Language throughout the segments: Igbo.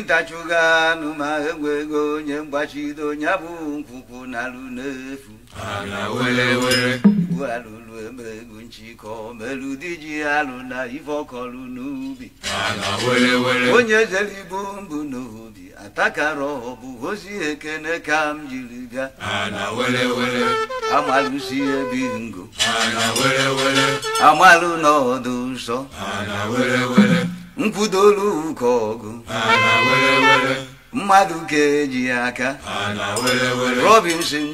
ntachuga egwu ego onye mgbachido ya bụ nkwụkwụ n'alụ n'efu igbu alụlụ eme egwu nchịkọ di ji alụ na ife ọkọlụ n'ubi onye ezelibu mbụ n'obi atakara ọbụ ozi ekene ka m jiri ga amalụsi ebi ngo amalụ n'ọdụ nsọ nkwụdolu ụka ọgụ mmadụ ka eji aka robinson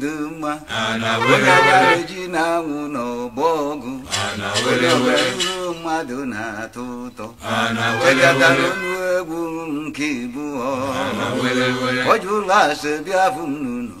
dị mma onye gbara ji na anwụ n'ọgbọ ọgụ onye mmadụ na-atọ ụtọ chekatara onu egwu nke ibu ọ jụrụ asị bịa fụ m n'ụlọ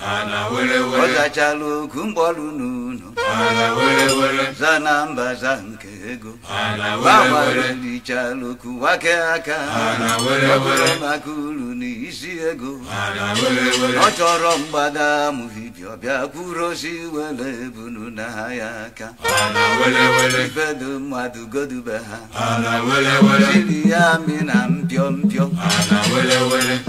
ọzachala ogu mgbaru n'ụlọ zana mba za nke ego gbanwaririchara wake aka maka uru na isi ego ọ chọrọ mgbada amụghị bịọbịa kwurosi were ebunu na ha ya aka ifedo mmadụ godube ha siri ya mi na mpio mpio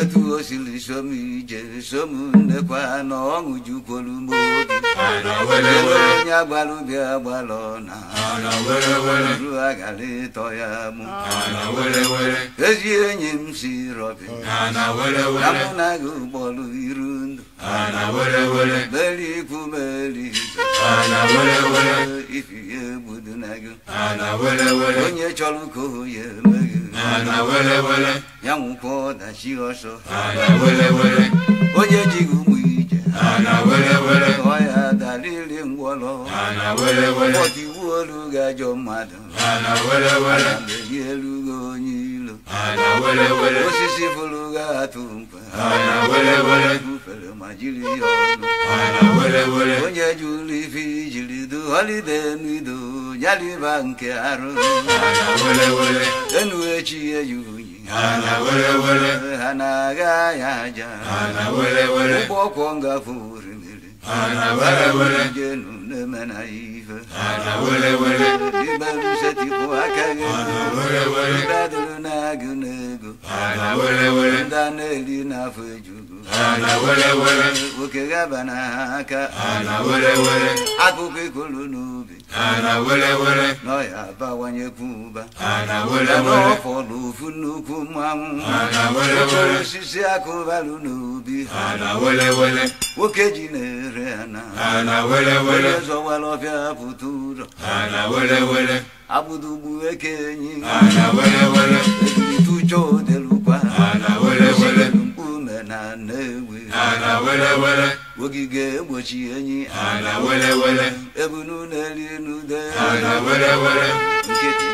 etu o siri som ije som na ọṅụju kwolu ugbo obi onye agbara ubi agbara ọna ru agara ịtọ ya mụ ezi enyi m si rọbi na mụ na gị ụgbọrụ iru ndụ beri ikwu beri ifi ya egbudu na gị onye chọrọ ka o ya ya nwụkwa ọdachi ọsọ onye ji ụbọchị iwu olu ga-ajọ mmadụ na-eyi elu gị onye ilo osisi bụrụ ga-atụ mkpa ufere ma jiri ya onye ji ụlọ ife ijiri du holide n'ido nyaliba nke arụ enu echi eji unyi ha na-aga ya aja ụgbọ ọkwọ ngafuru أنا ولا ولا جنون منايفة أنا ولا ولا بمشتي قواكا أنا ولا ولا بدل ناقو ناقو أنا ولا ولا دانا لينا فجوكو أنا ولا ولا وكغابنا هاكا أنا ولا ولا عفوك كل نوبي أنا ولا ولا نايا باواني كوبا أنا ولا ولا فولو فنوكو مامو أنا ولا ولا سيسياكو بالو نوبي أنا ولا ولا وكجينير rena ana wele wele zowalo fya futuro ana wele wele abudu buweke nyi ana wele wele tucho de lupa ana wele wele ume na newe ana wele wele wogige gbochi enyi ana wele wele ebunu n'eli nude. ana wele wele nkịtị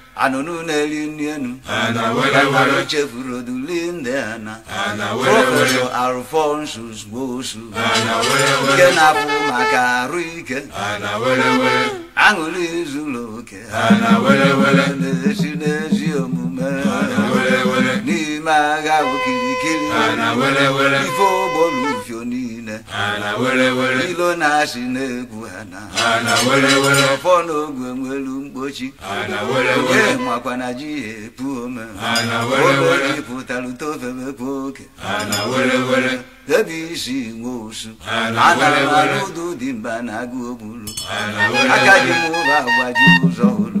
anụnụ na-eri nri enu anụ chefuru oduli ndị ana prọfesọ alfonsus gbosu nke na-apụ maka arụ ike aṅụrị zuru oke na-esi n'ezi omume n'ime agha okirikiri ife ogbolu fio ilo na-asị na-egwu ọfọ n'oge nwelu mkpochi oke makwa na ji epu ome omeji pụtara utofebepu oke ebe isi nwe osu anara m alụ ụdụ dị mba na agụ ogburu aka dị m agbaji ụzọ ụlọ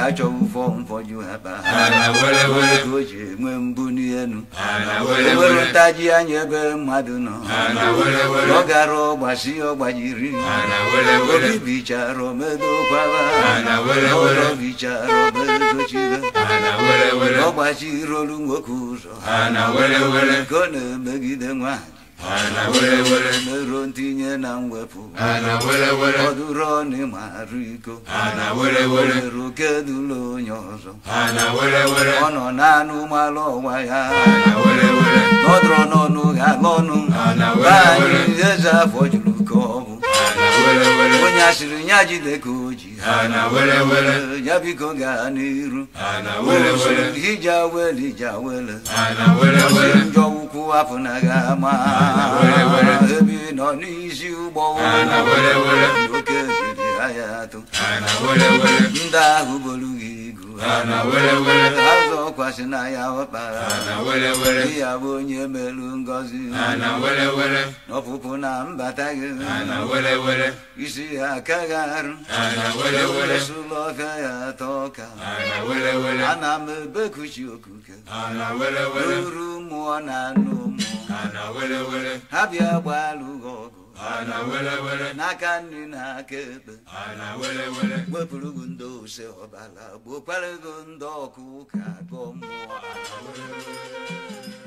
achọ ụfọ mfọju oji nwee mbụ n'elu ewere ntaji anya ebe mmadụ nọ ọ gara ọgbasi ọgbajiri obi bichara omedokwaba ọrọ bichara omedochibe ọgbachirolu nwoke ụzọ ka ọ na-emegide nwaanyị Ana were were meruo ntinye na mwepụ Ana were were ọdụrụ ọnụ iko Ana were were meruo kedụlụ onye ọzọ Ana were were ọ nọ naanụ malụ ọnwa ya ala were were nọdụrụ n'ọnụ ọnụ ala were were anyị eze afọ juru ka ọ bụ Ana were were onye asịrị ya jide ka o ji ya biko gaa n'iru hija wele ija wele si njọ ukwu afọ na ga ama ebi nọ n'isi ụgbọ oke biri ha ya atụ ndị ahụ bolu gị ana were were azụ kwasịna ya ọkpara ana were were ya bụ onye melu ngọzi ana were were ọpụpụ na mbata gị ana were were isi ya aka gị arụ ana were were sụlọ ọka ya atọ ana were were ana m ebekuchi okuke ana were were uru mmụọ na anụ ana were were ha bịa gbaa ana wele wele n'aka nri n'aka ekpe ana wele wele wepụrụ gị ndị ose ọbara gbokwara gị ndị ọkụ ka gọ mmụọ ana